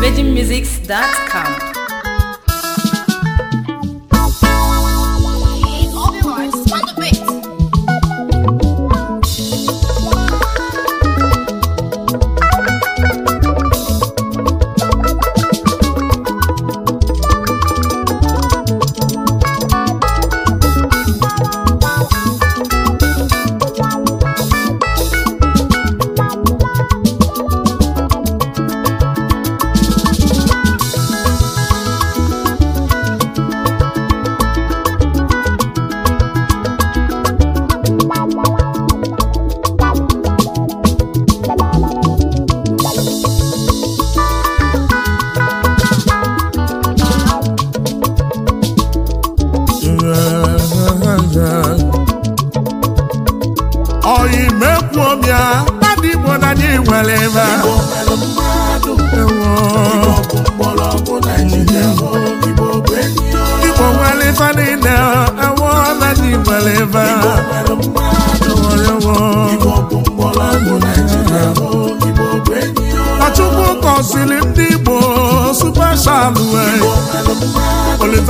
VegieMusics.com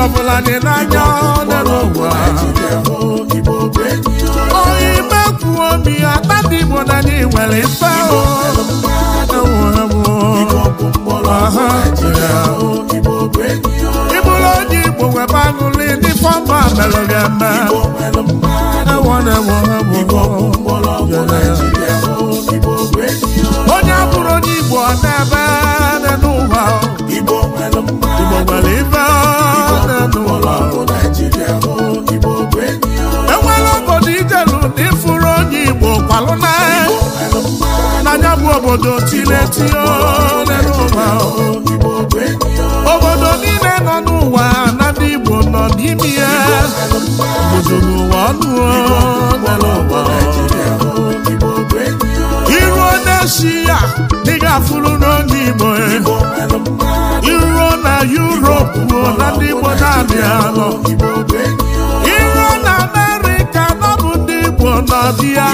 ọbụla dị n'anya onye n'ụwa onye ime kwuo ya tata igbo na ndị nwere mfe ịbụrụ onye igbo webe aṅụlị ndị fọmba mere gị eme onye bụrụ onye igbo ọ na-ebe n'ụwa igbo nwere obodo tiletio obodo niile nọ n'ụwa na ndị Igbo nọ n'ime ya obodo n'ụwa ọnụ iruo n'eshi ya dị ga-afụrụ n'onye Igbo e. iruo na yuropu ruo na ndị Igbo na iru iruo na Amerịka nọ bụ ndị Igbo nọ dị ya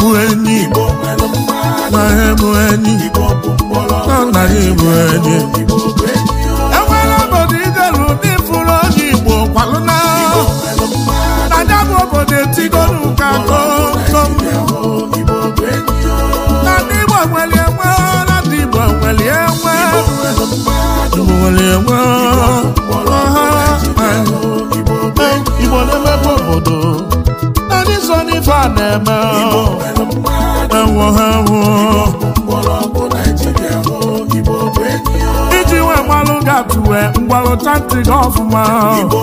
bụ enyi na ebu enyi na nna gị bụ enyi enwere obodo idelu ndị fụrụ onye Igbo kwalụna na ya bụ obodo etigolu ka kokom na ndị Igbo nwere enwe na ndị Igbo nwere enwe Igbo nwere enwe a na-eme ewo ha iji nwe mmalụ ga-atụwe mgbalụchantị ọfụma igbo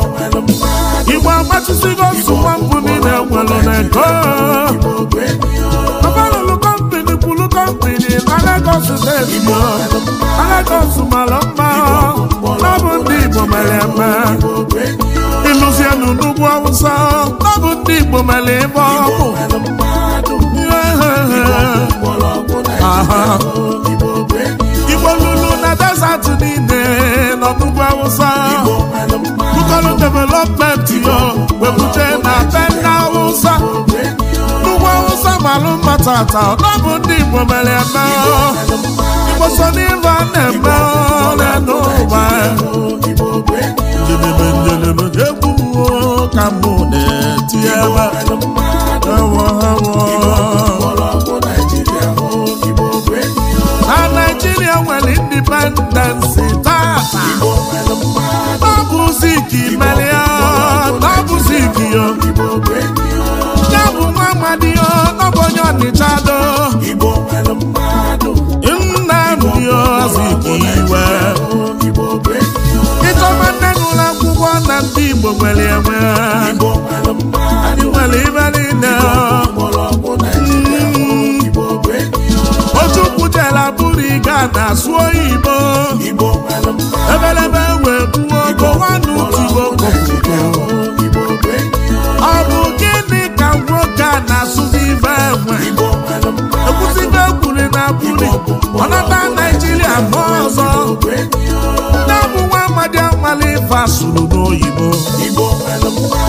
agbachisigo nsụwa mbụ niile nwere n'ego abalụlụ kọmpini kwulu kọmpini na Lagos steeti Lagos mara mma ọ bụ ndị Igbo mere eme ịlụzienụ n'ugwu Awụsa ọ bụ ndị Igbo mere ebe ọkụ Igbo lulu na desert niile n'ọdụgwu Awụsa Bukoro development yo webuje na Tenda Awụsa Nnukwu Awụsa malụ mma tata ọ ndị Igbo mere eme Igbo so n'ife na-eme n'elu ụwa Njedebe egwu ka mụ na-eti ebe ewo ewo Igbo nwere enwe anyị nwere ibe otu kwutela bụrụ iga na-asụ oyibo ife asụrụ n'oyibo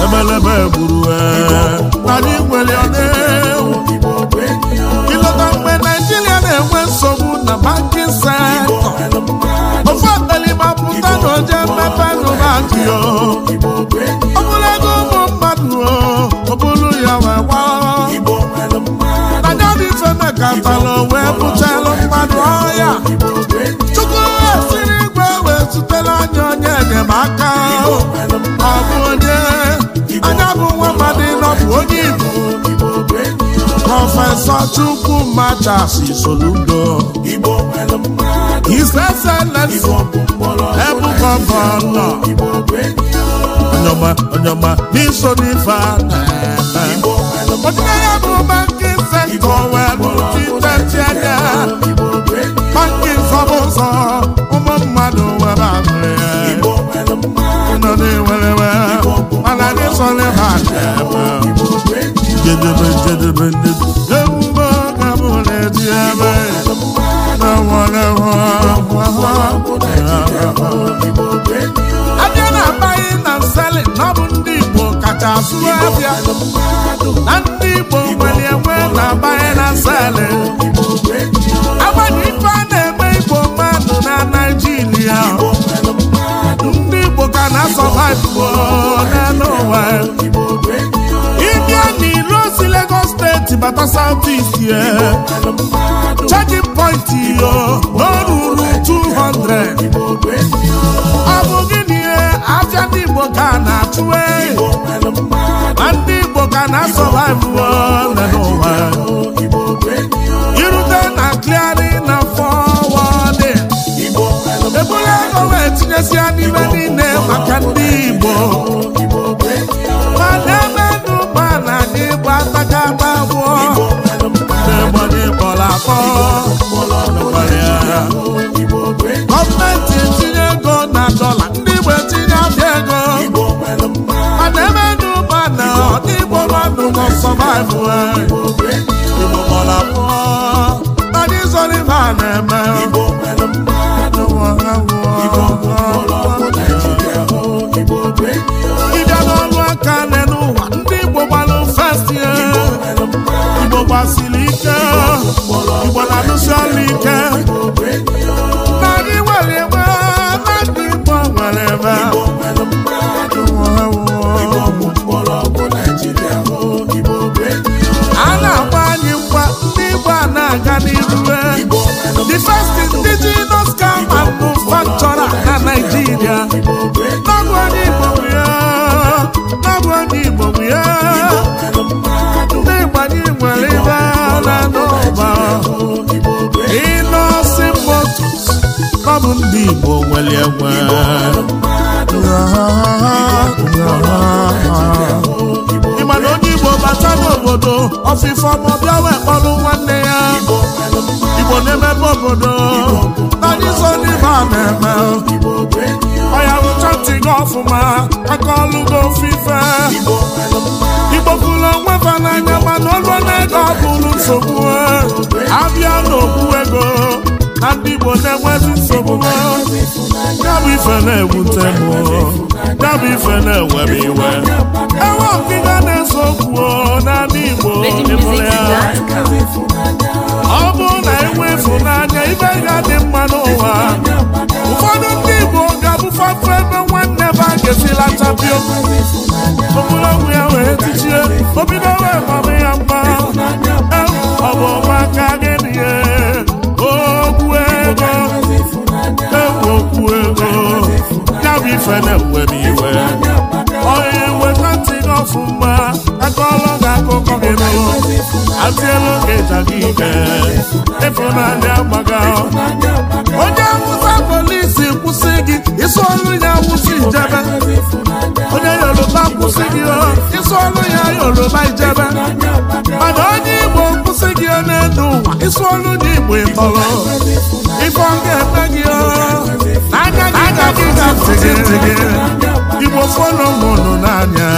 emelebe gburu anyị nwere ọna mgbe naijiria na-enwe nsogbu na bankin sektọ ofe akpelima pụta na mmepe nụbaki ọ bụrụ mmadụ ọ bụrụ wee Chukwu machasi soludo His Excellency Ebukobo Onyoma Onyoma n'iso n'ife a na-eme Onye ya bụ bankin sektọ welu titechi anya bankin zọbụ ụzọ ụmụ mmadụ were ahụ ya ụnọ na-ewerewe mana anyị sọ n'ife a na-eme jedebe jedebe jedebe na na na bụ ndị Igbo kacha abịa na ndị Igbo nwere enwe na amaghị na nselin agbanyeghị ife na-eme Igbo mmadụ na ndị Igbo ka na-asọba ndị Lagos steeti bata South East ye checking point yo n'oruru 200 ọ bụ gịnị afịa ndị Igbo ka na-achụwe ma ndị Igbo ka na-asọvaivụ ole n'ụwa irute na kliari na fọwọdị ebule ego wee tinyesia n'ime niile eh, maka ndị atakapa gbụọ n'egbodo ịkpọrọ agha gọọmenti etinye ego na dọla ndị etinye abịa ego a na-eme n'ụba na na ike igbo na alụsiala ike na anyị nwere ebe nwere a na-agba anyị ndị igbo na-aga n'iru e. the first indigenous car manufacturer na Nigeria nwere ibe a na-anụ ụba ndị Igbo nwere onye Igbo bata n'obodo ọfịfọ ma wee kpọrụ nwanne ya Igbo na-emebe obodo nadizo ndị ba na-eme ya ntị gị ọfụma aka na ndị Igbo na-enwezi nsogbu ya ife na-ewute m ife na-ewere iwe enwe ọkịga na-ese okwu n'ala Igbo ọ bụrụ na enwe ịfụnanya ibe ga dị mma n'ụwa ụfọdụ ndị Igbo ga-abụfapụ ebe nwanne ba ga-esila chapi okwu okpụrụ ya wee tichie obido wee mama ya mma ife na-ewe iwe onye weta ntị gị ọfụma akọọlọ gị akụkọ gị nụrụ atịelu gị ịja gị ike ịfụnanya gbaga onye awụsa polisi kwụsị gị isi ọrụ ya awụsa onye yoruba kwụsị gị isi ọrụ ya yoruba ijebe mana onye igbo kwụsị gị n'elu ụwa isi igbo ịtọrọ ife ọ eme gị n'anya igbo fọnụnụ n'anya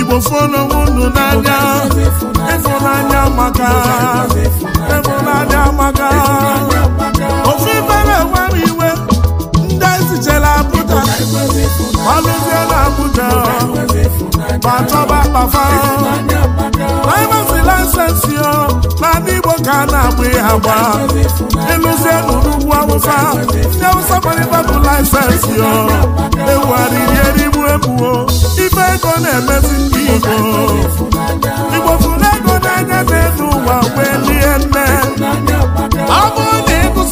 igbo fọnụnụ anya maka ịfụnanya maka ofe bara iwe ndị ezichela abụja malụzie na abụja ma chọba kpafa laịmasị laịsensị ka a na-agba ihe agba ịlụzie n'ugwu awụsa ndị awụsa gbarịbadụ laịsensị o ewugharịri erigbu egbuo ibe ego na-emezi ndị Igbo Igbo fụrụ ego n'anya na-elu ụwa wee lie nne ọ bụrụ na ịgụsị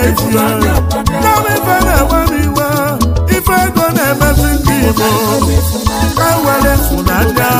na-eji ya kama ife na-egbe m iwe ife ego na-emezi ndị Igbo ka were funanya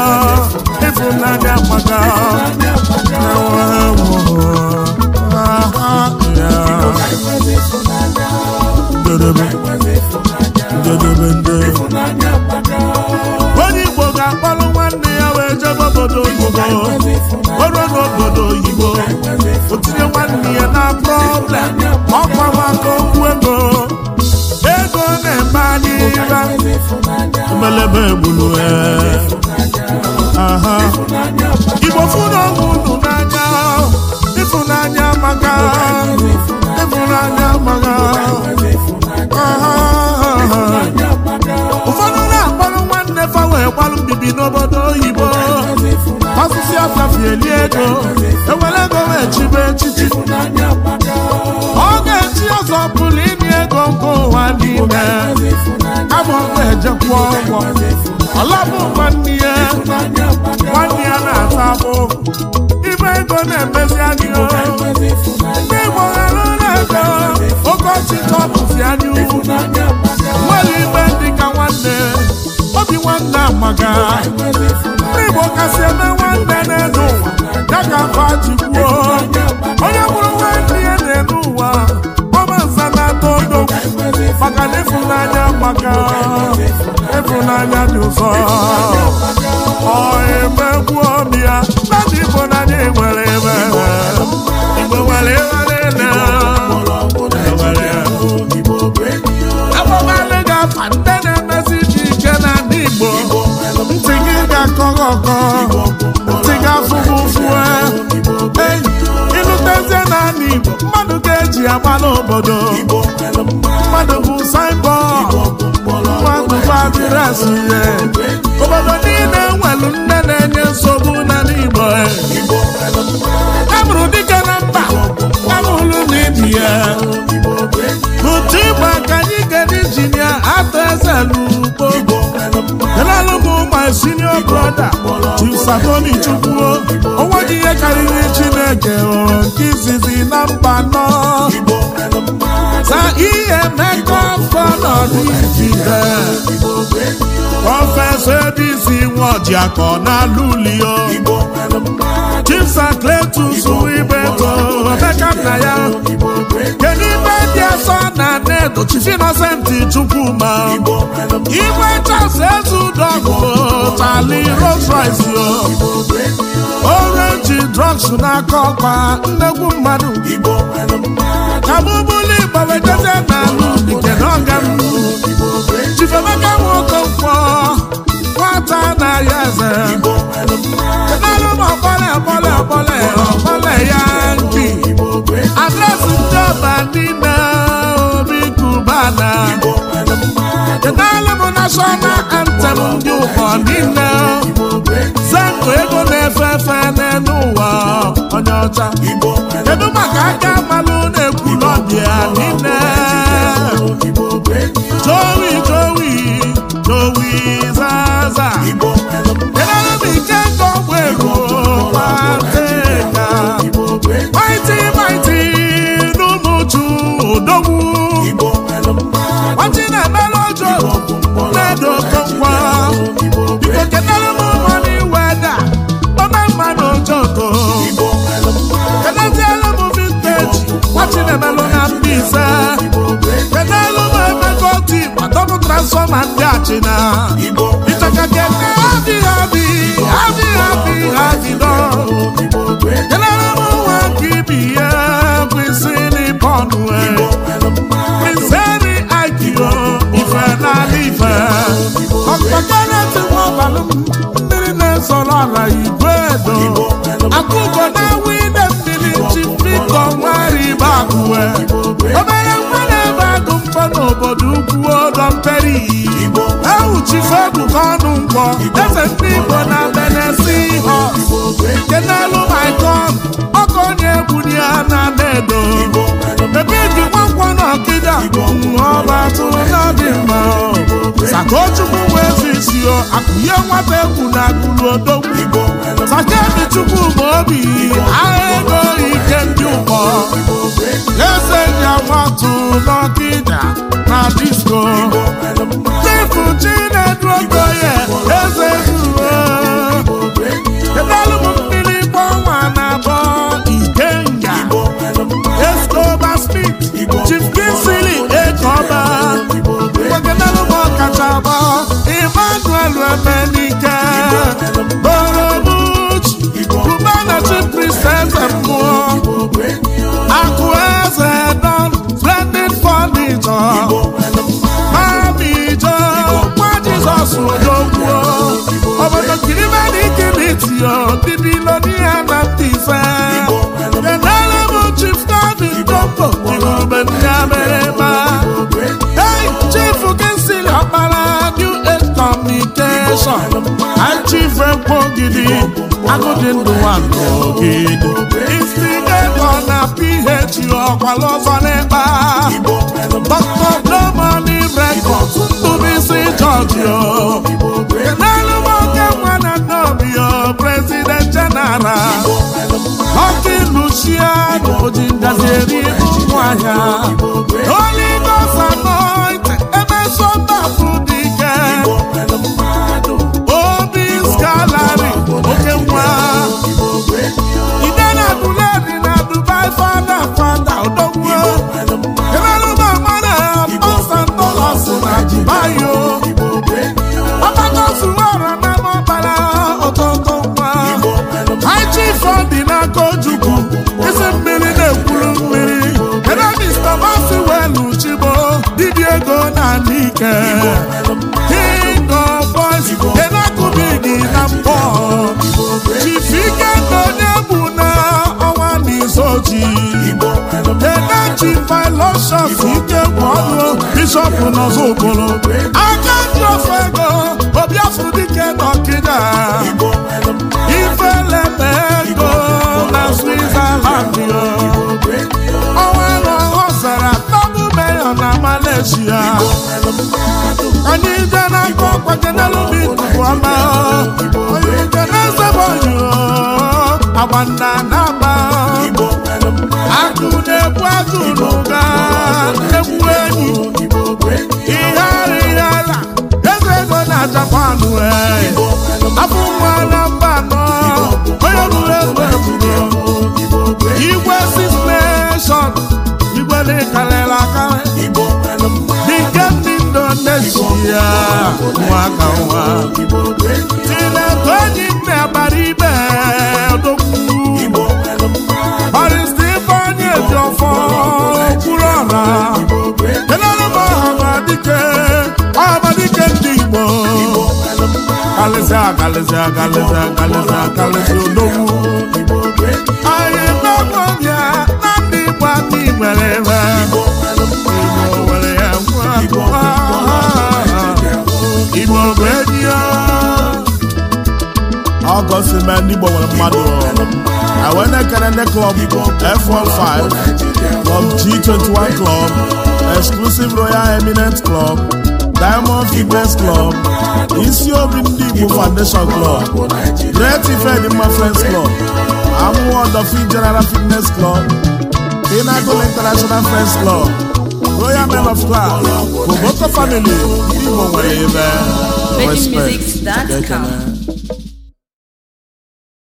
na-egbulu ee ejekwa ụgwọ ọlabụ nwanne ya nwanne ya na-ata abụ ibe ego na-emezi anya ndị Igbo ghara na-ego okochi tọpụzi anya ukwu nwere ibe dịka nwanne obi nwanne amaga ndị Igbo kasị eme nwanne na-edo ụwa ya ka azụ obodo niile nwelu nne na-enye nsogbu n'ala Igbo amụrụ dike na mba amụrụ n'ibi ya n'ụtụ ịgba ka anyị gara injinia atọ eze n'ugbo elalụbụ my senior brother Chisaoni Chukwuo onwe gị ihe karịrị Chineke nke izizi na mba nọ ka ihe mekọ afọ nọdụ ijide prọfesọ ebisi nwojiakọ n'alụlio chimsakletus ibeto emeka nna ya kedu ibe ndị ọsọ na nnedo chifi inosenti chukwuma igwe chas ezudogụ tali rolls o orenji drugs n'aka ọkpa nnegwu mmadụ abụbụla igbo weteze a ubi kedu ọga m chifemaka nwoke nkwọ na-ahịa eze kenarụ m ụmụ ọkpọle ọkpọle ọkpọle ya nki adresị ndị ọba niile obi kubana kenarụ m nashọnal antem ndị ụkọ niile chinemelụ na Mbaise kenelu na emekọti gbadọbụ transfọma ndị achịna ịchọka kene adịghị adị adịghị adịghị adịdọ kenelu m nwa ka ibi ya ife mmiri na-ezọrọ ala igwe edo akụkọ na-awụ ide mmiri ebe akụwe obere nwa na-ebe agụ mkpọ n'obodo ukwu ọdọ mperi ewuchife ebuka ọnụ mkpọ eze ndị igbo na benesi ha nke n'elu maikon ọkọ onye egwu ya na-ada edo ebe ọba tụrụna dị mma sakochukwu bụ ezi isi akụnye nwata egwu na akụrụ odogwu sakemi chukwu bụ obi agha ego ike ndị ụkpọ eze ya nwatụ n'ọkịda na disko chifu chinedu ogoye eze zuru ọsọ achi ife mkpọgidi agụ dị ndụ nwanụ ogidi na ph ọkwala ọzọ n'ịkpa dr blomani rekọd tụbisi jọjio n'elu nwa na nnọbio prezident jeneral ọkị lucia na oji ngazi eri ibu nwaahịa onye emeso dị ike Bishọp ike gwọọlụ nọzọ okporo aka ndị ofe ego obiafụ dike dọkịta ifeleta ego na Switzerland na Malaysia ọkwa akụ na-ekwu azụ n'ụga egwu a ihe na japan afọ na mba nọ onye bụrụ igwe six igwe dị ndị indonesia nwaka nwa akalịsị akalịsị akalịsị akalịsị akalịsị odogwu anyị na ya na ha ha ha nwere ebe ya ha ha bụ enyi ya ọgọsị na ndị Igbo nwere club F15 club G21 club exclusive royal eminent club Diamond Fitness Club, Isiobi obi ndị Igbo Foundation Club, Great Ifedima Friends Club, Amụwa General Fitness Club, Pinnacle International Friends Club, Royal Men of Class, Boboto Family, Igbo nwere ebe.